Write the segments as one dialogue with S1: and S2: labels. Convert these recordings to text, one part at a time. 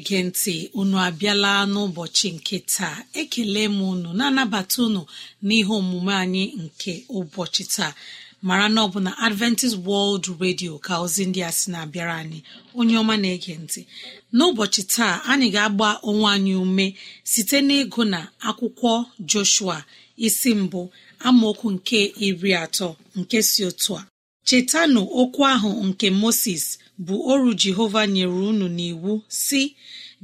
S1: na-ege ntị unu abịala n'ụbọchị nke taa ekele m unu na-anabata unu n'ihe omume anyị nke ụbọchị taa mara na ọ bụ na adventist world radio ka ozi ndị a sị na-abịara anyị onye ọma na-ege ntị n'ụbọchị taa anyị ga-agba onwe anyị ume site n'ịgụ na akwụkwọ joshua isi mbụ amaokwu nke iri atọ nke si otu a chetanụ okwu ahụ nke moses bụ ọrụ jehova nyere unu n'iwu si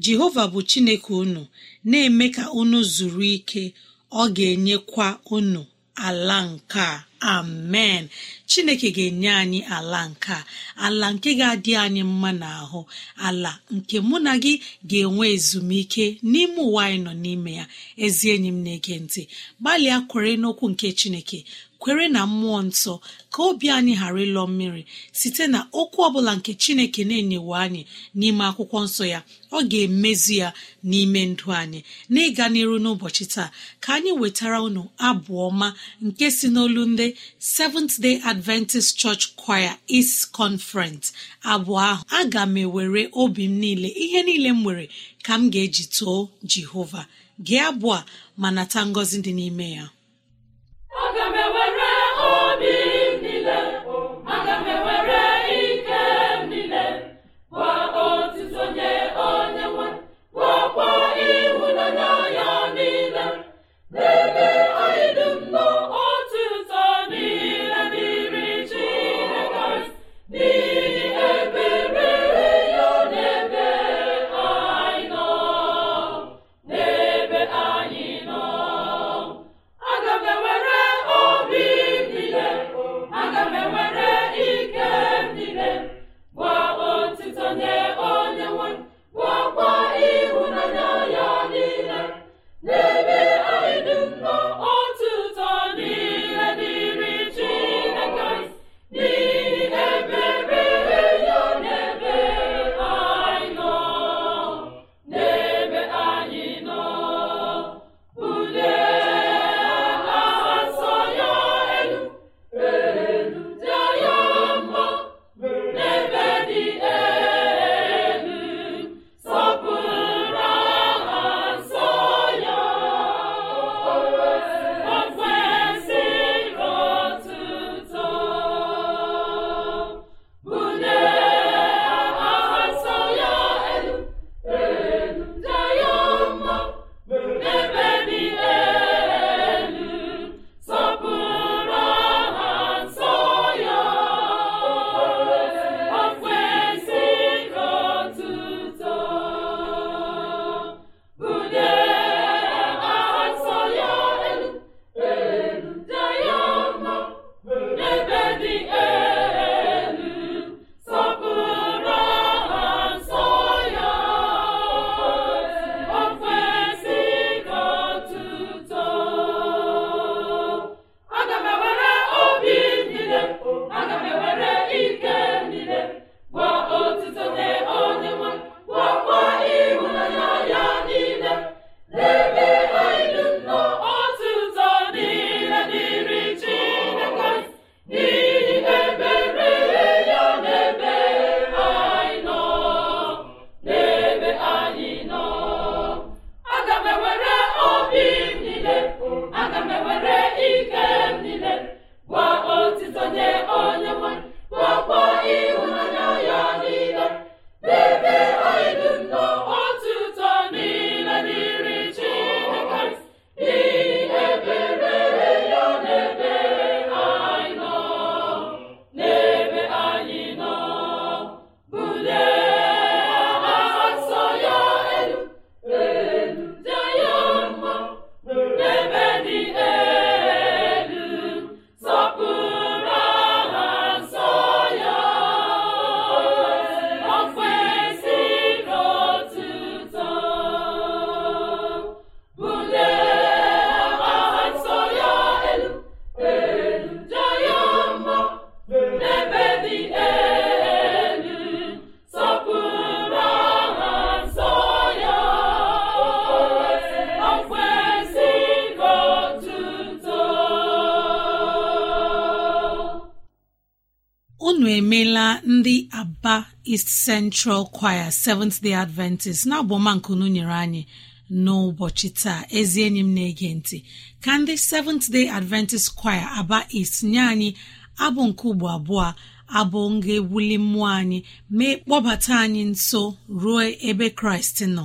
S1: jehova bụ chineke unu na-eme ka unu zuru ike ọ ga-enyekwa unu ala nke a amen chineke ga-enye anyị ala nke a ala nke ga-adị anyị mma n'ahụ ala nke mụ na gị ga-enwe ezumike n'ime ụwa anyị nọ n'ime ya ezi enyi m na-ege ntị gbalịa kwere n'okwu nke chineke kwere na mmụọ nsọ ka obi anyị ghara ịlọ mmiri site na okwu ọbụla nke chineke na-enyewe anyị n'ime akwụkwọ nsọ ya ọ ga-emezi ya n'ime ndụ anyị n'ịga n'iru n'ụbọchị taa ka anyị wetara unu abụọma nke si n'olu ndị Seventh Day Adventist Church Choir East Conference abụọ ahụ aga m ewere obi m niile ihe niile m nwere ka m ga-eji too Jehova gee abụọ ma nata ngọzi dị n'ime ya
S2: aga m ewere
S1: Central Choir Seventh Day Adventist na nkunu nyere anyị n'ụbọchị taa ezi enyi m na-ege ntị ka ndị Seventh Day Adventist Choir Aba East nye anyị abụ nke ugbo abụọ abụ nga ewuli mmụọ anyị mee kpọbata anyị nso ruo ebe Kraịst nọ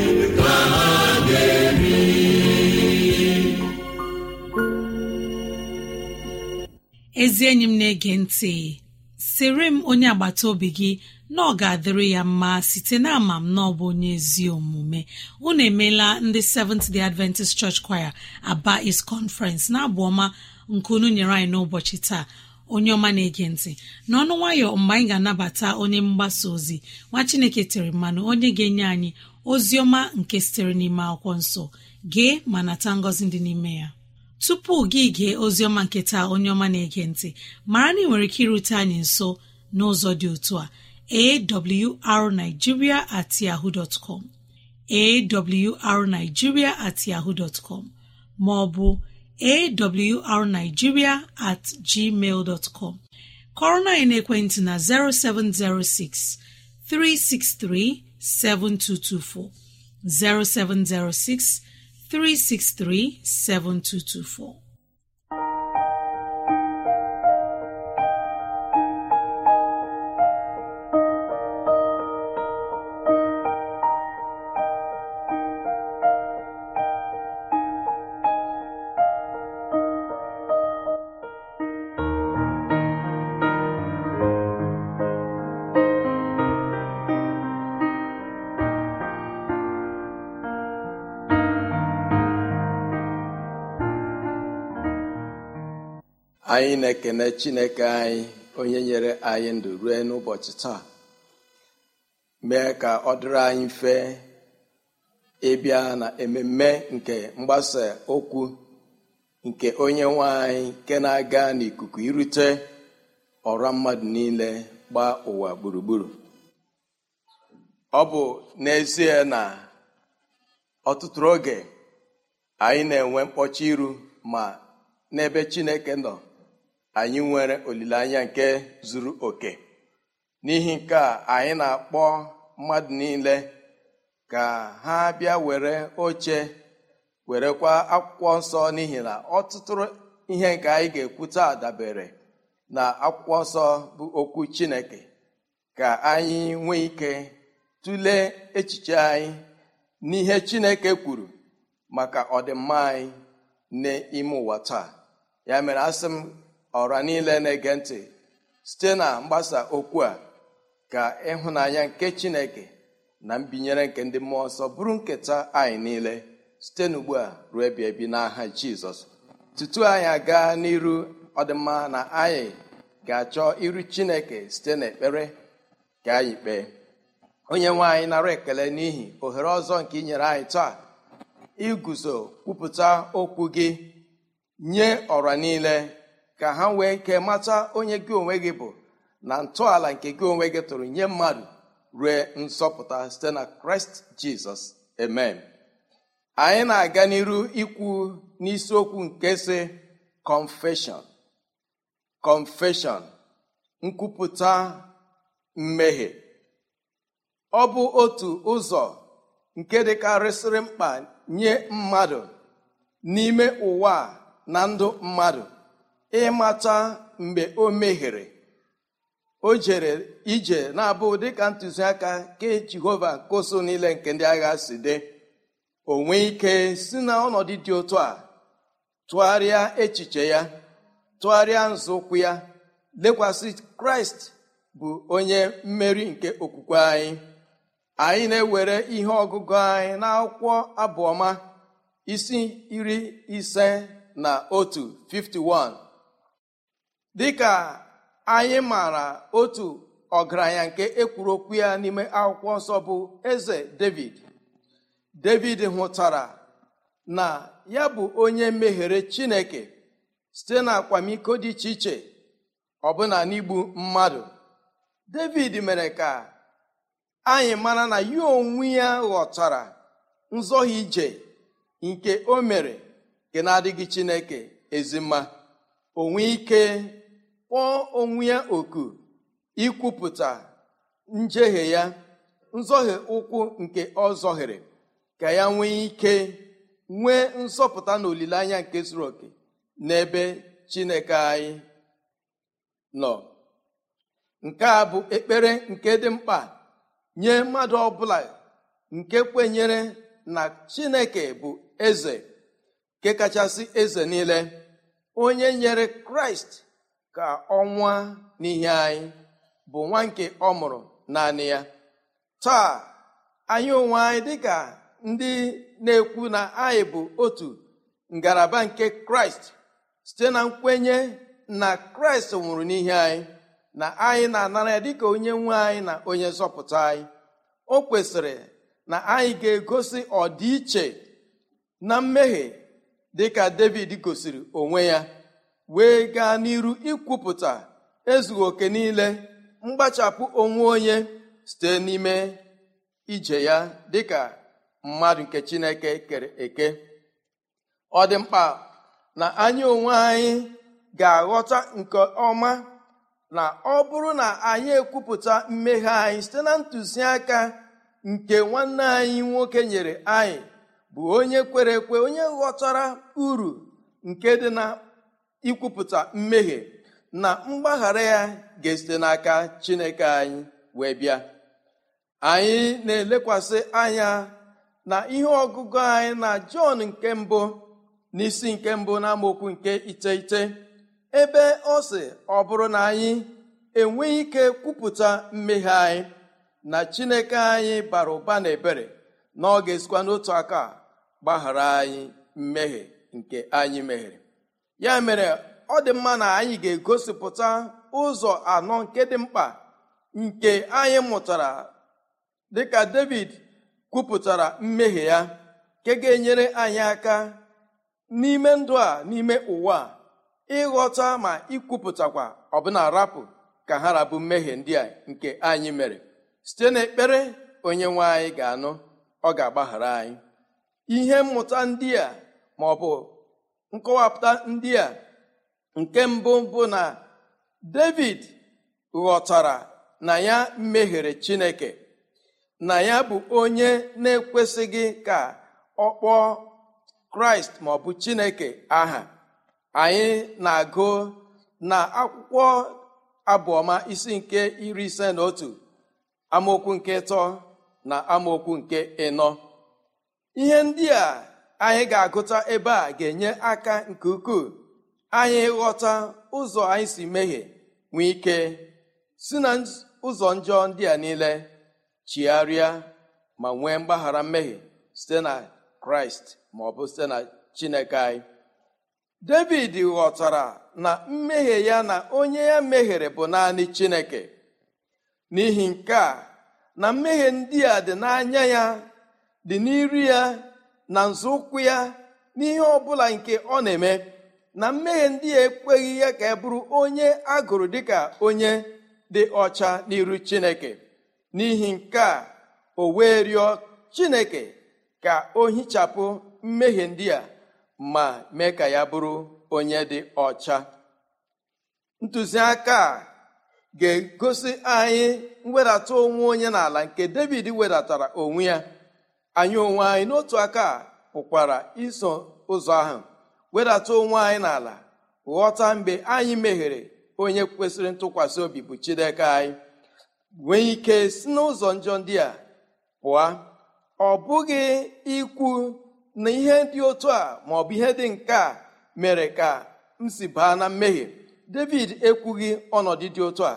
S1: ezi enyi m na-ege ntị sịrị m onye agbata obi gị na ọ ga-adịrị ya mma site na ama m na ọ bụ onye ezi omume unu emeela ndị Seventh Day Adventist Church Choir Aba East Conference na-abụ ọma nke unu nyere anyị n'ụbọchị taa onye ọma na-ege ntị n'ọnụ nwayọ mgbe anyị ga-anabata onye mgbasa ozi nwa Chineke tere mmanụ onye ga-enye anyị ozi ọma nke sitere n'ime akwụkwọ nsọ gee ma nata ngọzi dị n'ime ya tupu gị gee oziọma nkịta onye ọma na-ege ntị mara na ị nwere ike irute anyị nso n'ụzọ dị otu a awrnigeria at com at com ma ọ bụ awrnigeria at gmail com kọrọ na ekwentị na 0706 363 7224 0706 363-7224
S3: anyị na-ekene chineke anyị onye nyere anyị ndụ rue n'ụbọchị taa mee ka ọ dịrị anyị mfe ịbịa na ememe nke mgbasa okwu nke onye nwe anyị nke na-aga n'ikuku irute ọra mmadụ niile gbaa ụwa gburugburu ọ bụ n'ezie na ọtụtụ oge anyị na-enwe mkpọchi iru ma n'ebe chineke nọ anyị nwere olileanya nke zuru oke n'ihi nke a anyị na-akpọ mmadụ niile ka ha bịa were oche werekwa akwụkwọ nsọ n'ihi na ọtụtụ ihe nke anyị ga-ekwu taa dabere na akwụkwọ nsọ bụ okwu Chineke ka anyị nwee ike tụlee echiche anyị n'ihe Chineke kwuru maka ọdịmma anyị n'ime ụwa taa ya mere asị m ọra niile na-ege ntị site na mgbasa okwu a ka ịhụnanya nke chineke na mbinyere nke ndị mmụọ nsọ bụrụ nketa anyị niile site n'ugbu a ruo ebi ebi n'aha jizọs tutu anyị aga n'iru ọdịmma na anyị ga-achọ iru chineke site n'ekpere ka anyị kpee onye nwe anyị nara ekele n'ihi ohere ọzọ nke ị nyere anyị taa iguzo kwupụta okwu gị nye ọra niile ka ha nwee nke mata onye gị onwe gị bụ na ntọala nke gị onwe gị tụrụ nye mmadụ rue nsọpụta site na kraịst jizọs amen anyị na-aga n'iru ikwu n'isiokwu nke si confession kọnfeshọn nkwupụta mmehie ọ bụ otu ụzọ nke dịkarịsịrị mkpa nye mmadụ n'ime ụwa na ndụ mmadụ ịmata mgbe o meghere o jere ije na-abụ dịka ntụziaka nke jehova koso niile nke ndị agha si dị o ike si na ọnọdụ dị otu a tụgharịa echiche ya tụgharịa nzọụkwụ ya lekwasị kraịst bụ onye mmeri nke okwukwe anyị anyị na-ewere ihe ọgụgụ anyị na akwụkwọ abụọma isi iri ise na otu 51 dịka anyị maara otu ọgaranya nke ekwuru okwu ya n'ime akwụkwọ nsọ bụ eze david david hụtara na ya bụ onye meghere chineke site na akwamiko dị iche iche ọbụna n'igbu mmadụ david mere ka anyị mara na ya onwe ya ghọtara nzọghị ije nke o mere nke na-adịghị chineke ezimma onwe ike kpọọ onwe ya oku ikwupụta njehie ya nzoghi ụkwụ nke ọ zọhiri ka ya nwee ike nwee nsọpụta na olileanya nke zuru oke n'ebe chineke anyị nọ nke a bụ ekpere nke dị mkpa nye mmadụ ọbụla nke kwenyere na chineke bụ eze nke kachasị eze niile onye nyere kraịst ka ọnwa n'ihe anyị bụ nwa nke ọ mụrụ naanị ya taa anyị onwe anyị dịka ndị na-ekwu na anyị bụ otu ngalaba nke kraịst site na nkwenye na kraịst nwụrụ n'ihe anyị na anyị na-anara ya dịka onye nwe anyị na onye nzọpụta anyị o kwesịrị na anyị ga-egosi ọdịiche na mmehie dịka david gosiri onwe ya wee gaa n'iru ikwupụta ezughị oke niile mgbachapụ onwe onye site n'ime ije ya dịka mmadụ nke chineke kere eke ọ dị mkpa na anyị onwe anyị ga-aghọta nke ọma na ọ bụrụ na anyị ekwupụta mmeghe anyị site na ntụziaka nke nwanne anyị nwoke nyere anyị bụ onye kwere ekwe onye ghọtara uru nke dị na ikwupụta mmehie na mgbaghara ya ga-esite n'aka chineke anyị wee bịa anyị na-elekwasị anya na ihe ọgụgụ anyị na jọn nke mbụ na isi nke mbụ n'amaokwu nke iteghete ebe ọ sị ọ bụrụ na anyị enweghị ike kwupụta mmehie anyị na chineke anyị bara ụba na ebere na ọ ga-esikwa n'otu aka gbaghara anyị mmehie nke anyị meghere ya mere ọ dị mma na anyị ga-egosipụta ụzọ anọ nke dị mkpa nke anyị mụtara dịka david kwupụtara mmehie ya nke ga-enyere anyị aka n'ime ndụ a n'ime ụwa ịghọta ma ikwupụtakwa ọbụna rapụ ka ha rabu mmehie ndị a nke anyị mere site n'ekpere onye nwe anyị ga-anụ ọ ga-agbaghara anyị ihe mmụta ndị a ma bụ nkọwapụta ndị a nke mbụ bụ na david ghọtara na ya mehiere chineke na ya bụ onye na-ekwesịghị ka ọ kpọọ kraịst maọbụ chineke aha anyị na-agụ na akwụkwọ abụọma isi nke iri ise na otu amaokwu nke ịtọ na amaokwu nke ịnọ ihe ndị a anyị ga-agụta ebe a ga-enye aka nke ukwuu anyị ghọta ụzọ anyị si mehie nwee ike si na ụzọ njọ ndị a niile chigharịa ma nwee mgbaghara mmehie site na kraịst ma ọ bụ site na chineke anyị david ghọtara na mmehie ya na onye ya mehiere bụ naanị chineke n'ihi nke a na mmehie ndị a dị n'anya ya dị n'iru ya na nzọụkwụ ya n'ihe ọ bụla nke ọ na-eme na mmehie ndị ya ekweghị ya ka e bụrụ onye agụrụ dịka onye dị ọcha n'iru chineke n'ihi nke a o wee rịọ chineke ka o hichapụ mmehie ndị a ma mee ka ya bụrụ onye dị ọcha ntụziaka a ga-egosi anyị mwedata onwe onye n'ala nke david wedatara onwe ya anyị onwe anyị n'otu aka pụkwara iso ụzọ ahụ wedata onwe anyị n'ala ghọta mgbe anyị meghere onye kwesịrị ntụkwasị obi bụ Chineke anyị nwee ike si n'ụzọ njọ ndị a pụọ ọ bụghị ikwu na ihe dị otu a ma ọ bụ ihe dị nke a mere ka m si baa na mmehie David ekwughị ọnọdụ dị otu a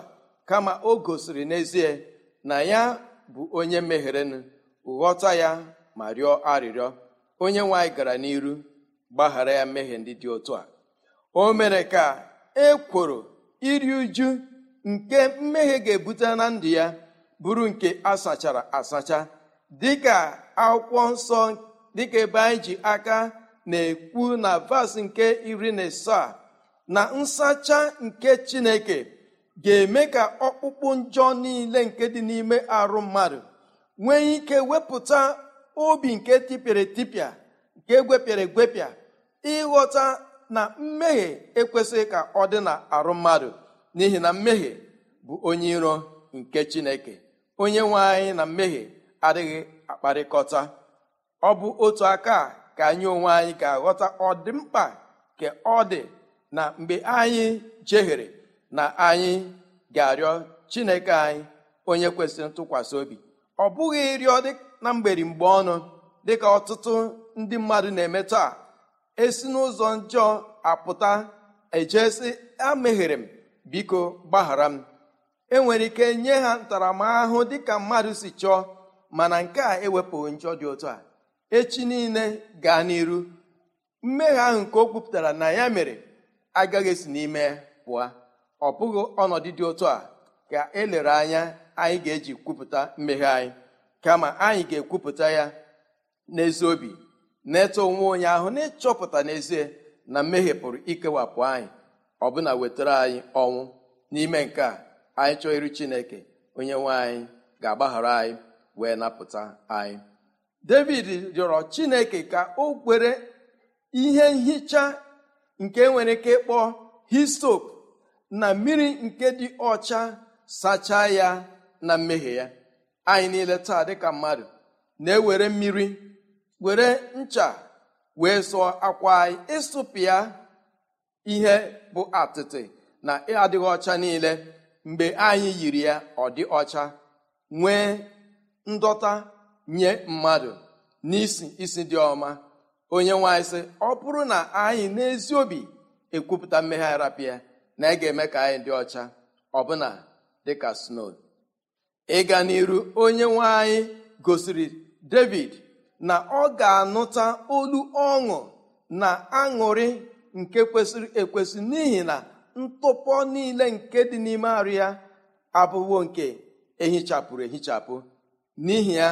S3: kama o gosiri n'ezie na ya bụ onye mehirenụ ghọta ya ma rịọ arịrịọ onye nwe anyị gara n'iru gbaghara ya mmehie ndị dị otu a o mere ka e kwuru iri uju nke mmehie ga-ebute na ndụ ya bụrụ nke asachara asacha dịka akwụkwọ nsọ dịka ebe anyị ji aka na-ekwu na vas nke iri na asaa na nsacha nke chineke ga-eme ka ọkpụkpụ njọ niile nke dị n'ime arụ mmadụ nwee ike wepụta obi nke tipịara etipịa nke gwepịara egwepịa ịghọta na mmehie ekwesịghị ka ọ dị na arụ mmadụ n'ihi na mmehie bụ onye iro nke chineke onye nwe anyị na mmehie adịghị akparịkọta ọ bụ otu aka ka anyị onwe anyị ga-aghọta ọdịmkpa ka ọ dị na mgbe anyị jehiere na anyị ga-arịọ chineke anyị onye kwesịrị ntụkwasị obi ọ bụghị ịrịọ na mgberi mgbe ọnụ dịka ọtụtụ ndị mmadụ na-eme taa esi n'ụzọ njọ apụta ejesi ameghere m biko gbaghara m enwere ike nye ha ntaramahụhụ dịka mmadụ si chọọ mana nke a ewepụghị njọ dị otu a echi niile gaa n'iru mmehie ahụ nke o kwupụtara na ya mere agaghị esi n'ime pụọ ọ bụghị ọnọdụ dị otu a ka elere anya anyị ga-eji kwupụta mmehie anyị kama anyị ga-ekwupụta ya n'ezi obi na-eto onwe onye ahụ na-ịchọpụta n'ezie na mmehie pụrụ ikewapụ anyị ọbụna wetara anyị ọnwụ n'ime nke a anyị chọọ iri chineke onye nwe anyị ga-agbaghara anyị wee napụta anyị david rịọrọ chineke ka o kwere ihe nhicha nke nwere ike ịkpọ histop na mmiri nke dị ọcha sachaa ya na mmehie ya anyị niile taa dịka mmadụ na-ewere mmiri were ncha wee sụọ akwa anyị ịsụpịa ihe bụ atịtị na adịghị ọcha niile mgbe anyị yiri ya ọ dị ọcha nwee ndọta nye mmadụ n'isi isi dị ọma onye nwanyị sị ọ bụrụ na anyị n'ezi obi ekwupụta mmegharapịa na ị ga-eme ka anyị dị ọcha ọbụna dịka snow ịga n'iru onye nwe anyị gosiri david na ọ ga-anụta olu ọṅụ na aṅụrị nke kwesịrị ekwesị n'ihi na ntụpọ niile nke dị n'ime arụ ya abụwo nke ehichapụrụ ehichapụ n'ihi ya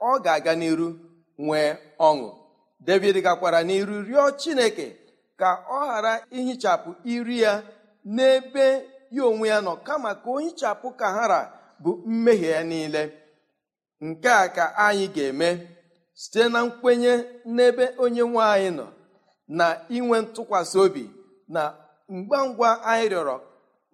S3: ọ ga-aga n'iru nwee ọṅụ david gakwara n'iru rịọ chineke ka ọ ghara ihichapụ iri ya n'ebe ya onwe ya nọ kama ka o hichapụ kahara bụ mmehie ya niile nke a ka anyị ga-eme site na nkwenye n'ebe onye nwe nọ na inwe ntụkwasị obi na ngwa ngwa anyị rịọrọ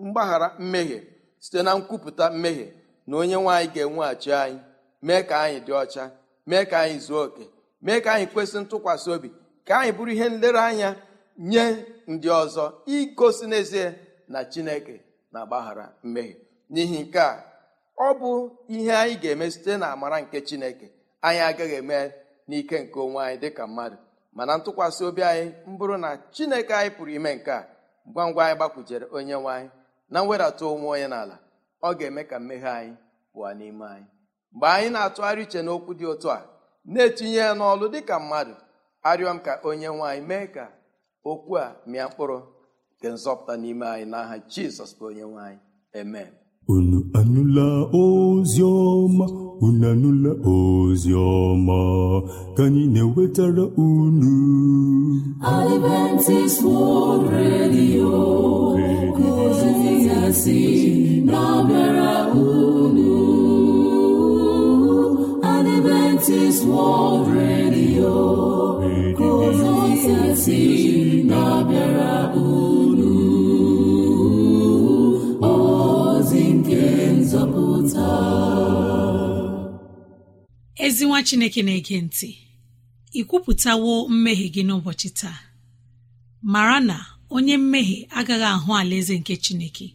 S3: mgbaghara mmehie site na nkwupụta mmehie na onye nwe anyị ga-enweghachi anyị mee ka anyị dị ọcha mee ka anyị zuo oke mee ka anyị kwesị ntụkwasị obi ka anyị bụrụ ihe nlereanya nye ndị ọzọ igosi n'ezie na chineke na-agbaghara mmehie n'ihi nke a ọ bụ ihe anyị ga-eme site na amara nke chineke anyị agaghị eme n'ike nke onwe anyị dịka mmadụ mana ntụkwasị obi anyị mbụrụ na chineke anyị pụrụ ime nke a ngwa ngwa anyị gbakwujere onye nwaanyị na mwedata onwe onye n'ala ọ ga-eme ka mmehie anyị pụọ n'ime anyị mgbe anyị na-atụgharị uche n'okwu dị otu a na-etinye ya n'ọlụ dịka mmadụ arịọ m ka onye nwaanyị mee ka okwu a mịa mkpụrụ nke nzọpụta n'ime anyị n'aha aha jizọs bụ onye nwe anyị unu anụla
S2: ozi ọma unu anụla ozi ọma ka anyị na-ewetara unu Adventist World Radio kozizasi na-abịara unu Adventist World Radio kozizasi na-abịara unu
S1: ezi chineke na-ege ntị ị kwupụtawo mmehie gị n'ụbọchị taa mara na onye mmehie agaghị ahụ alaeze nke chineke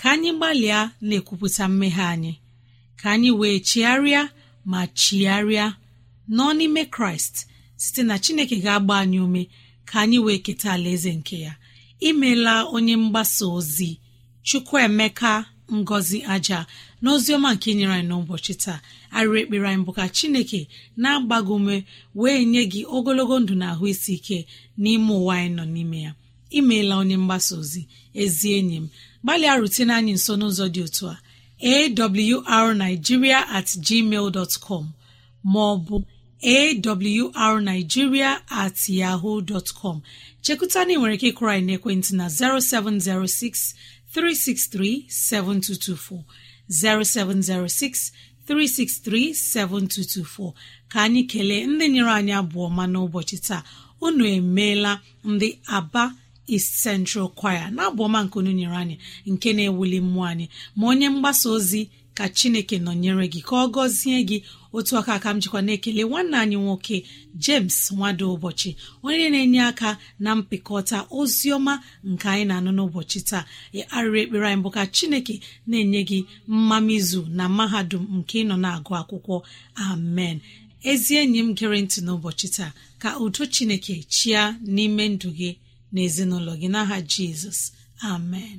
S1: ka anyị gbalịa na-ekwupụta mmehie anyị ka anyị wee chigharịa ma chigharịa nọ n'ime kraịst site na chineke ga-agba anyị ume ka anyị wee keta alaeze nke ya imela onye mgbasa ozi chukwuemeka ngozi aja n'oziọma nke nyere anyị n'ụbọchị taa arịrị ekpere anyị bụ ka chineke na-agbago ume wee nye gị ogologo ndụ na ahụ isi ike n'ime ụwa anyị nọ n'ime ya imeela onye mgbasa ozi ezi enyi m gbalịa rutene anyị nso n'ụzọ dị otu a awrnigeria at gmail dot com maọbụ arigiria at yahoo dot com chekụta na ị nwere ike ịkụrọ anyị n'ekwentị na 0706 363-7224, 0706 363-7224 ka anyị kelee ndị nyere anyị abụọ ma n'ụbọchị taa unu emeela ndị aba East Central Choir na abụọma nke unu nyere anyị nke na-ewuli mmụọ anyị ma onye mgbasa ozi ka chineke nọnyere gị ka ọ gọzie gị otu aka aka m jikwa na-ekele nwanne anyị nwoke james nwado ụbọchị onye na-enye aka na mpịkọta ozi ọma nke anyị na-anụ n'ụbọchị taa arịrị ekpere anyị bụ ka chineke na-enye gị mmamizu na mahadum nke ịnọ na-agụ akwụkwọ amen ezi enyi m gere ntị n'ụbọchị taa ka udo chineke chia n'ime ndụ gị na ezinụlọ gị n'aha jizọs amen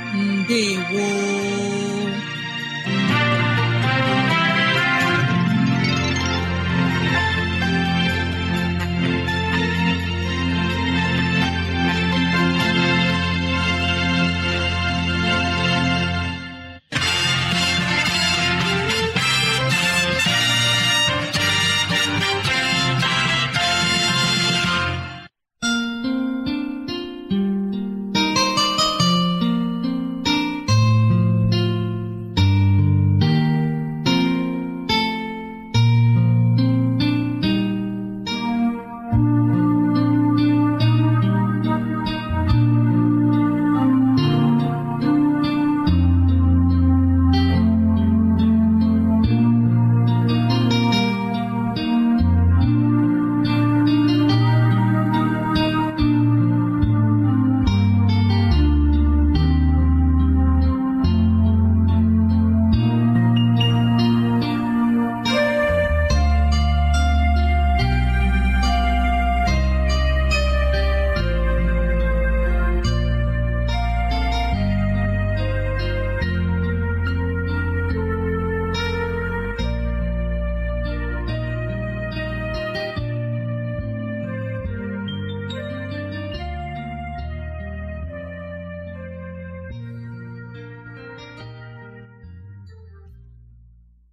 S1: ndewo